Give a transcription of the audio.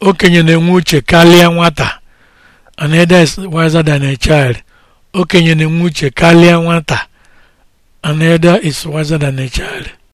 okenye na-enwe uche karịa nwata an elder is wiser than a child okenye na-enwe uche karịa nwata an is wiser than